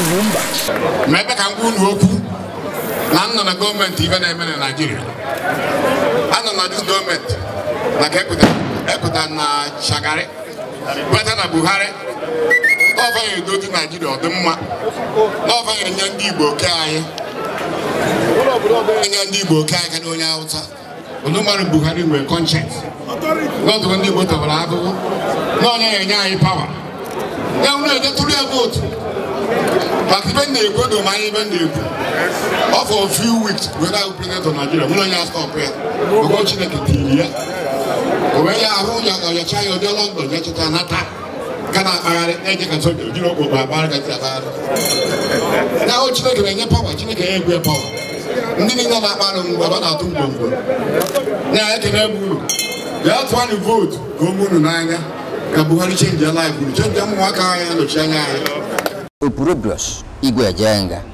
ugwu mba ma ebe ka m gwa unu okwu na m nọ na gọọmenti ibe na-eme na Naịjirịa nọ na dis gọọmenti maka epụta na Shagari kweta na Buhari n'ọfa ya edozi Naịjirịa ọdịmma n'ọfa ya enye ndị Igbo oke anyị enye ndị Igbo oke anyị karịa onye Hausa Olumare Buhari nwere kọnchent n'ọdụrụ ndị Igbo tọbara ahụhụ n'onye ya enye anyị pawa ya wụrụ eje tụrụ but even the good or my even the or for a few weeks without president of Nigeria, we don't have stop here. We go ya the Kitilia. But ahụ you a home, you are your child, you are London, you are akpagharị akpagharị na o Chineke na-enye pawa Chineke ya egwe pawa ndị niile na-akpagharị ngwa ba na-atụ ngwongwo ya ekene bụ uru bịa tụanụ vootu ka o munu n'anya ka Buhari chenji ya laif uru chenji ụmụnwaka anyị anya 伊个呀，真噶。